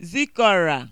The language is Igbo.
zikora